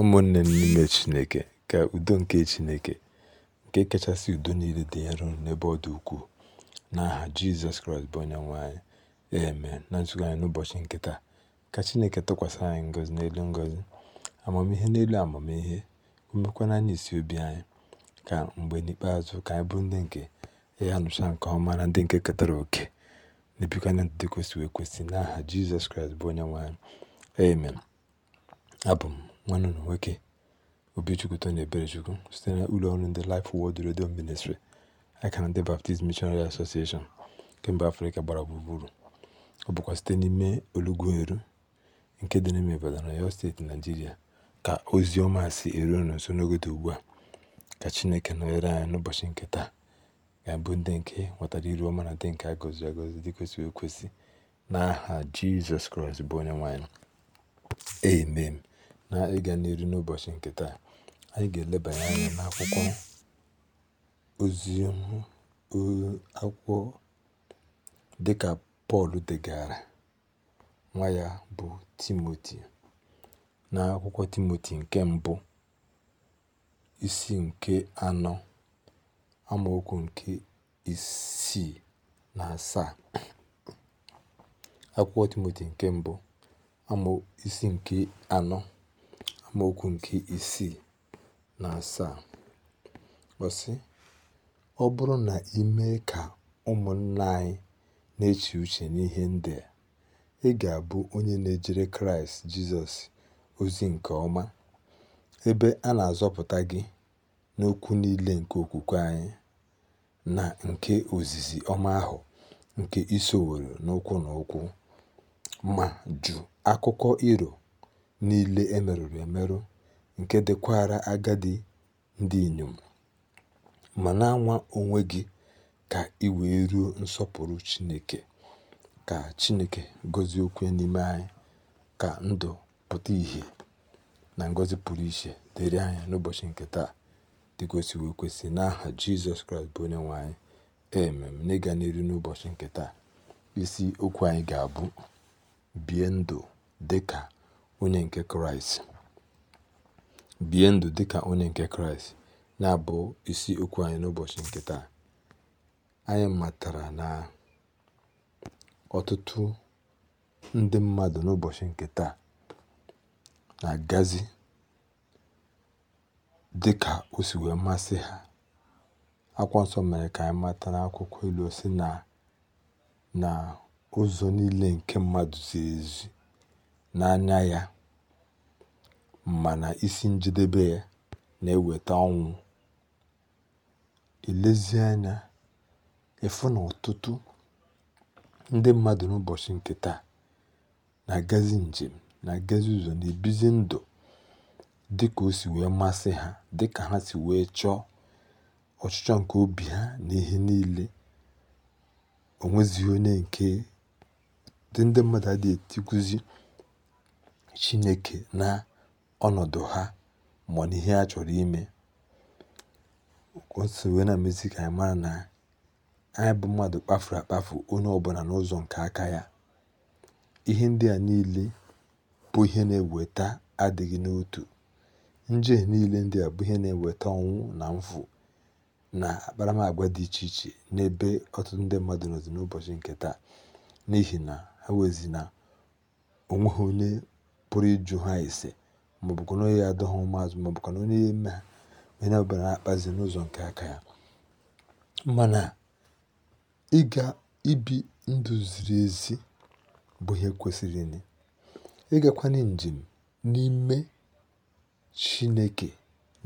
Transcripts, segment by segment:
ụmụnne m n'ime Chineke, ka udo nke Chineke, nke kachasị udo niile dị nro n'ebe ọ dị ukwuu, n'aha Jizọs Kraịst bụ Onyenwe anyị, amen. Na nzukọ anyị n'ụbọchị nkịta ka Chineke tụkwasị anyị ngọzi n'elu ngọzi, amamihe n'elu amamihe, umekwana anyị isi obi anyị, ka mgbe n'ikpeazụ ka anyị bụ ndị nke ya nụcha nke ọma na ndị nke ketara oke na-ebikwa na ndụ kwesịrị ekwesị n'aha Jizọs Kraịst bụ Onyenwe anyị, amen. Abụ m nwanụnụ nwoke chukwu site na ụlọọrụ ndị Life Word redio Ministry aka na ndị Baptist Missionary Association nke Afrịka gbara gburugburu ọ bụkwa site n'ime Olugweru nke dị n'ime na Ọyọ steeti Naijiria ka ozi ọma si eru unu nso n'oge ugbu a ka Chineke nọnyere anyị n'ụbọchị nke taa ga-abụ ndị nke nwetara iru ọma na ndị nke a gọziri agọzi dị kwesịrị ekwesị n'aha Jizọs Kraịst bụ onye nwe anyị amen na ịga n'ụbọchị nke taa, anyị ga-elebanye anya n'akwụkwọ ozi akwụkwọ dịka Pọl degara nwa ya bụ Timoti na akwụkwọ Timoti nke mbụ isi nke anọ amaokwu nke isii na asaa akwụkwọ Timoti nke mbụ amaokwu nke anọ amaokwu nke isii na asaa ọsị ọ bụrụ na ị mee ka ụmụnna anyị na-eche uche n'ihe ndị ị ga-abụ onye na-ejere Kraịst Jizọs ozi nke ọma ebe a na-azọpụta gị n'okwu niile nke okwukwe anyị na nke ozizi ọma ahụ nke isoworo n'ụkwụ na ụkwụ ma jụ akụkọ iro niile e merụrụ emerụ nke dịkwara agadi ndị inyom ma na-anwa onwe gị ka ị wee ruo nsọpụrụ Chineke ka Chineke gọzie okwu n'ime anyị ka ndụ pụta ìhè na ngọzi pụrụ iche dịrị anyị n'ụbọchị nke taa dịgosiwe ekwesị n'aha Jizọs Kraịst bụ onye nwe anyị emem n'ịga n'iru n'ụbọchị nke taa isi okwu anyị ga-abụ bie ndụ dịka onye nke Kraịst bie ndụ dị ka onye nke Kraịst na-abụ isi okwu anyị n'ụbọchị nke taa anyị matara na ọtụtụ ndị mmadụ n'ụbọchị nke taa na-agazi dị ka o si wee masị ha akwa nsọ mere ka anyị mata n'akwụkwọ elu si na na ụzọ niile nke mmadụ ziri ezi n'anya ya, mana isi njedebe ya na-eweta ọnwụ. elezi anya, na ọtụtụ ndị mmadụ n'ụbọchị nke taa na-agazi njem, na-agazi ụzọ, na-ebizi ndụ dịka o si wee masị ha, dịka ha si wee chọọ ọchịchọ nke obi ha na ihe niile. O onye nke ndị mmadụ adịghị etikwuzi Chineke na ọnọdụ ha ma n'ihe ha chọrọ ime. O so wee na ka anyị mara na anyị bụ mmadụ kpafuru akpafu onye ọbụla n'ụzọ nke aka ya. Ihe ndị a niile bụ ihe na-eweta adịghị n'otu. Njehie niile ndị a bụ ihe na-eweta ọnwụ na mfu na akparamagwa dị iche iche n'ebe ọtụtụ ndị mmadụ nọzi n'ụbọchị nke taa n'ihi na ha wezi na o onye pụrụ ịjụ ha ise maọbụkwa na onye adọ ha ụmụazụ maọbụkwa na onye eme ha onye ọbụla na-akpazi n'ụzọ nke aka ya mana ịga ibi ndụ ziri ezi bụ ihe kwesịrị ịgakwanye njem n'ime chineke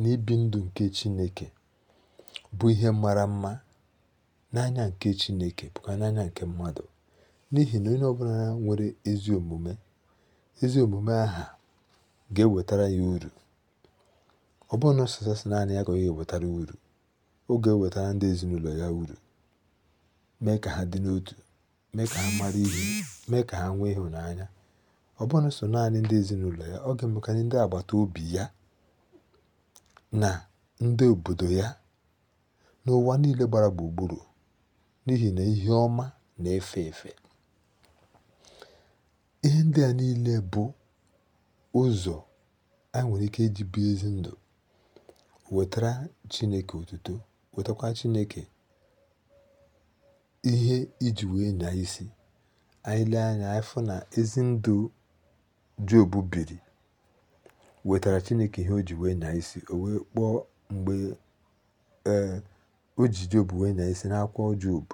na ibi ndụ nke chineke bụ ihe mara mma n'anya nke chineke bụkwa n'anya nke mmadụ n'ihi na onye ọbụla nwere ezi omume ezi omume aha ga-ewetara ya uru ọ bụrụ na naanị ya ka ewetara uru ọ ga-ewetara ndị ezinụlọ ya uru mee ka ha dị n'otu mee ka ha mara ihe mee ka ha nwee ịhụnanya ọ bụrụ naanị ndị ezinụlọ ya ọ ga-emekarị ndị agbata obi ya na ndị obodo ya n'ụwa niile gbara gburugburu n'ihi na ihe ọma na-efe efe ihe ndị a niile bụ ụzọ anyị nwere ike iji bie ezi ndụ wetara Chineke otuto wetakwa Chineke ihe iji wee na isi anyị anya afọ na ezi ndụ Job biri wetara Chineke ihe o ji wee na isi o wee kpọọ mgbe oji e, o ji Job wee nyaa isi n'akwụkwọ Job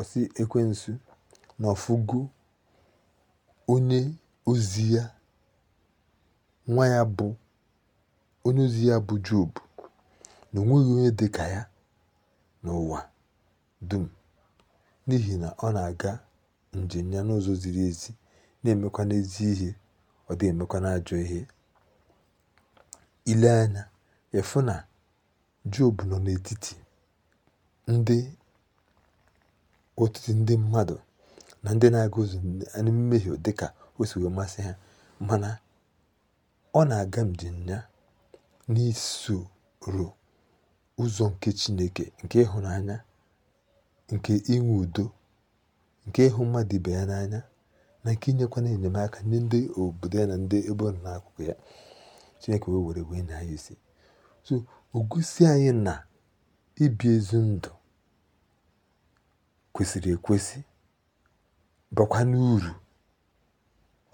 ọsi ekwensu na ọfụgo onye ozi ya, nwa ya bụ onye ozi ya bụ Job, na onweghị onye dị ka ya n'ụwa dum n'ihi na ọ na-aga njem ya n'ụzọ ziri ezi na-emekwa n'ezi ihe ọ dịghị emekwa n'ajọ ihe ile anya efu na Job nọ n'etiti ndị ọtụtụ ndị mmadụ na ndị na-aga ozu na mmehie dị ka o si wee masị ha mana ọ na-aga mjinya n'isoro ụzọ nke Chineke nke ịhụnanya nke inwe udo nke ịhụ mmadụ ibe ya n'anya na nke inyekwana enyemaka nye ndị obodo ya na ndị ebe ọrụ nọ n'akụkụ ya Chineke wee were wee nya ya isi so ogusi anyị na ibi ezi ndụ kwesịrị ekwesị bakwa n'uru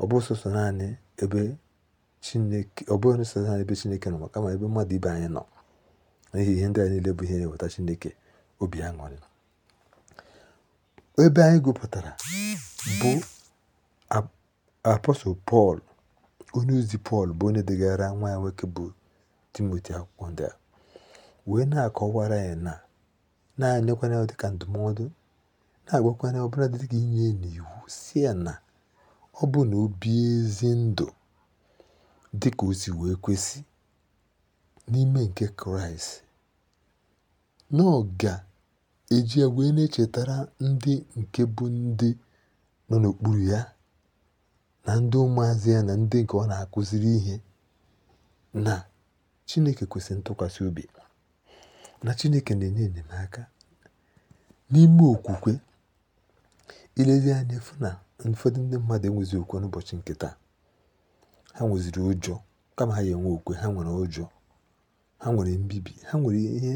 ọ bụrụ sọsọ naanị ebe chineke ọ bụrụ sọsọ naanị ebe chineke nọ kama ebe mmadụ ibe anyị nọ n'ihi ihe ndị a niile bụ ihe na-eweta chineke obi aṅụrị ebe anyị gụpụtara bụ apọstọl pọl onye ozi pọl bụ onye degara nwa ya nwoke bụ timoti akwụkwọ ndị a wee na-akọwara ya na na ya dịka ndụmọdụ na-agwakwa ya ọbụladị dịka inye n'iwu si ya na ọ bụ na ezi ndụ dị ka o wee kwesị n'ime nke Kraịst na eji ya wee na-echetara ndị nke bụ ndị nọ n'okpuru ya na ndị ụmụazị ya na ndị nke ọ na-akụziri ihe na Chineke kwesịrị ntụkwasị obi na Chineke na-enye enyemaka n'ime okwukwe ilezi anya na ụfọdụ ndị mmadụ enwezi okwe n'ụbọchị nke taa ha nweziri ụjọ kama ha ya enwe okwe ha nwere ụjọ ha nwere mbibi ha nwere ihe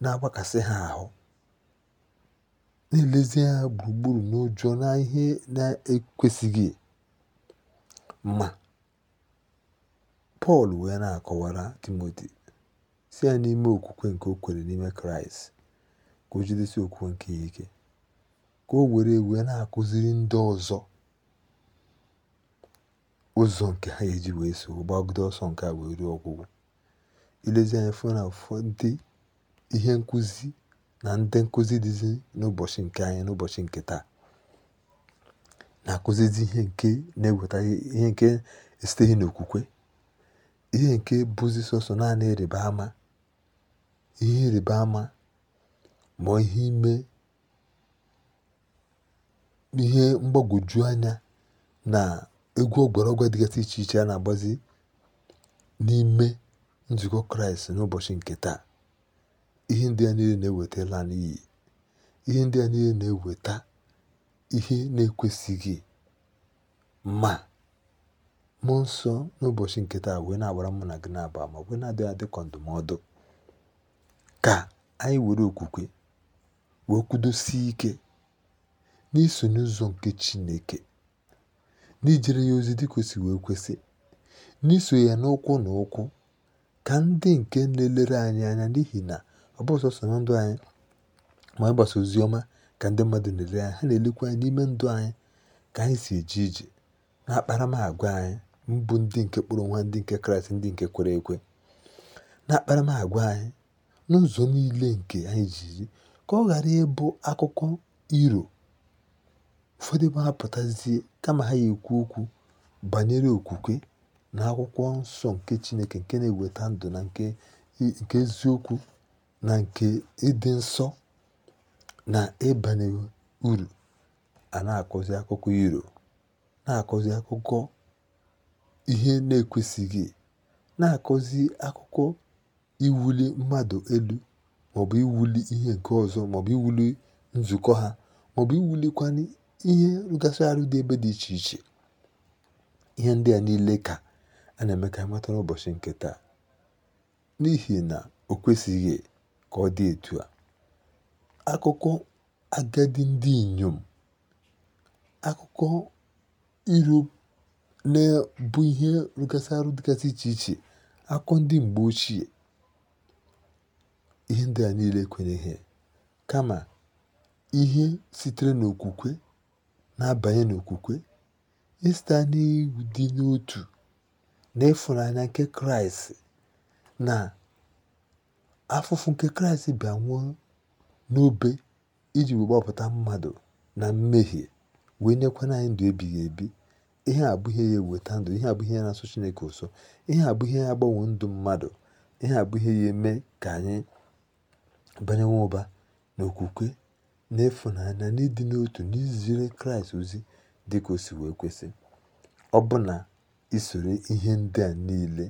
na-agbakasị ha ahụ na-elezi anya gburugburu n'ụjọ na ihe na-ekwesịghị ma pọl wee na-akọwara timoti si ya n'ime okwukwe nke o kwere n'ime kraịst ka o jidesi okwukwe nke ya ike ka o were wee na akụziri ndị ọzọ ụzọ nke ha eji wee wèe so gbagide ọsọ nke a wee ruo ọgwụgwụ ilezi anya fụ na ndị ihe nkụzi na ndị nkụzi dịzi n'ụbọchị nke anyị n'ụbọchị nke taa na-akụzizi ihe nke na-eweta ihe nke esiteghị n'okwukwe ihe nke bụzi sọsọ naanị ịrịba ama ihe ịrịba ama ma ihe ime ihe mgbagwoju anya na egwu ọgbaraọgwụ dịgasị iche iche a na-agbazi n'ime nzukọ kraịst n'ụbọchị nke taa ihe ndị a niile na-ewetala n'iyi ihe ndị a niile na-eweta ihe na-ekwesịghị ma mụ nsọ n'ụbọchị nke taa wee na-agbara mụ na gị na-aba ma wee na-adịghị adị ka ndụmọdụ ka anyị were okwukwe wee kwudosie ike n'iso n'ụzọ nke Chineke, n'ijere ya ozi dịka wee kwesị, n'iso ya n'ụkwụ na ụkwụ, ka ndị nke na-elere anyị anya n'ihi na ọ bụ ọsọsọ na ndụ anyị ma ịgbasa ozi ọma ka ndị mmadụ na-ele anyị, ha na-elekwa anyị n'ime ndụ anyị ka anyị si eje ije n'akparamagwa anyị mbụ ndị nke kpọrọ nwa ndị nke Kraịst ndị nke kwere ekwe n'akparamagwa anyị n'ụzọ niile nke anyị ji ka ọ ghara ịbụ akụkọ iro ụfọdụ ebe ha kama ha ga-ekwu okwu banyere okwukwe na akwụkwọ nsọ nke Chineke nke na-eweta ndụ na nke eziokwu na nke ịdị nsọ na ịbanye uru a na-akọzi akụkọ iro na-akọzi akụkọ ihe na-ekwesịghị na-akọzi akụkọ iwuli mmadụ elu maọbụ iwuli ihe nke ọzọ maọbụ iwuli nzukọ ha maọbụ iwulikwanye ihe rụgasị arụ dị ebe dị iche iche ihe ndị a niile ka a na-eme ka anyị mata ụbọchị nke taa n'ihi na o kwesịghị ka ọ dị etu a akụkọ agadi ndị inyom akụkọ iru na-ebu ihe rụgasị arụ dịgasị iche iche akụkọ ndị mgbe ochie ihe ndị a niile ekwenyeghị kama ihe sitere n'okwukwe na-abanye n'okwukwe ịsite n'ịdị n'otu na ịfụnanya nke kraịst na afụfụ nke kraịst bịa nwụọ n'obe iji gbapụta mmadụ na mmehie wee nyekwana anyị ndụ ebighị ebi ihe a bụ ihe ya eweta ndụ ihe a ihe ya na-asụ chineke ụsọ ihe a bụ ihe ya agbanwe ndụ mmadụ ihe a bụ ihe ya eme ka anyị banye nwa ụba n'okwukwe n'ịfụnanya na ịdị n'otu n'iziri Kraịst ozi dị ka o si wee kwesị. Ọbụna isoro ihe ndị a niile,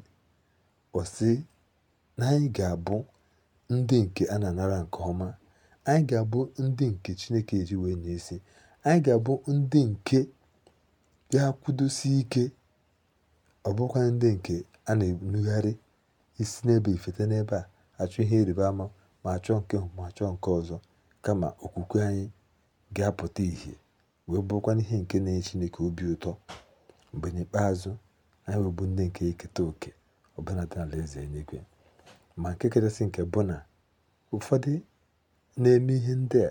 ọ sị na anyị ga-abụ ndị nke a na-anara nke ọma, anyị ga-abụ ndị nke Chineke ji wee nye isi, anyị ga-abụ ndị nke ga-akwụdosi ike, ọ bụkwa ndị nke a na-enugharị isi n'ebe ifete n'ebe a achọ ihe ịrịba ama ma achọ nke ma achọ nke ọzọ. kama okwukwe anyị ga-apụta ìhè wee bụrụkwanụ ihe nke na-enye Chineke obi ụtọ mgbe n'ikpeazụ anyị wee bụ ndị nke eketa òkè ọbụnadị n'alaeze eluigwe ma nke kachasị nke bụ na ụfọdụ na-eme ihe ndị a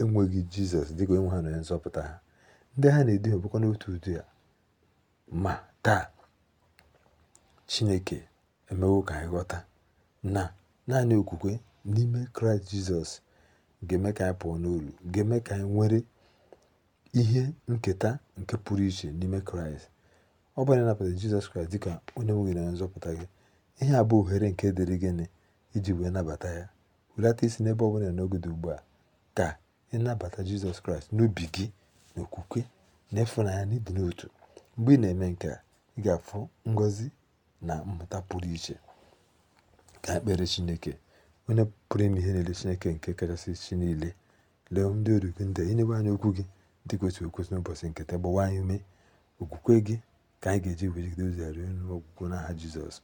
enweghị Jizọs dịka onye ha na nzọpụta ha ndị ha na-eduhie bụkwa n'otu ụdị a ma taa Chineke emewo ka anyị ghọta na naanị okwukwe n'ime Kraịst Jizọs ga-eme ka anyị pụọ n'olu ga-eme ka anyị nwere ihe nketa nke pụrụ iche n'ime kraịst ọ bụ na ịnabata jizọs kraịst dịka onye nwe gị na nzọpụta gị ihe a bụ ohere nke dịrị gịnị iji wee nabata ya welata isi n'ebe ọ bụla n'oge dị ugbu a ka ịnabata jizọs kraịst n'obi gị na okwukwe na ịfụnanya na ịdị n'otu mgbe ị na-eme nke a ị ga-afụ ngọzi na mmụta pụrụ iche ka ekpere chineke onye pụrụ ime ihe niile chineke nke kachasị chi niile lee ndị oru gị ndị inyewe anyị okwu gị dị kwesịrị ekwesị n'ụbọchị nketa gbawa anyị ume okwukwe gị ka anyị ga-eji wejigide ozi ya ruo ogwugwo n'aha jizọs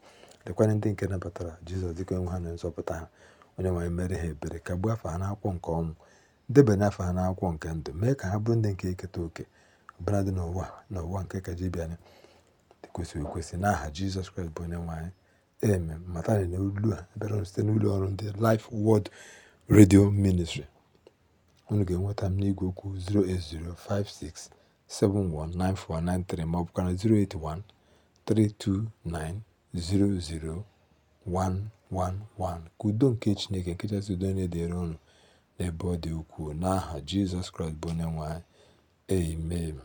lekwanye ndị nke nabatara jizọs dịka onwe ha na nzọpụta ha onye nwanyị mere ha ebere ka gbuo afọ ha n'akwụkwọ nke ọnwụ debanye afọ ha n'akwụkwọ nke ndụ mee ka ha bụrụ ndị nke eketa oke ọbụladị dị n'ụwa n'ụwa nke ka ji bịa dị okwesị n'aha jizọs kraịst bụ onye nwaanyị e. Eme matani na ulu a ebere site n'ụlọ ọrụ ndị Life world Radio Ministry. Unu ga-enweta m n'igwe okwu 08056719493 ma ọ 08132900111 ka udo nke Chineke nke kachasị udo na-edere unu n'ebe ọ dị ukwuu n'aha Jizọs Kraịst bụ onye nwe Amen.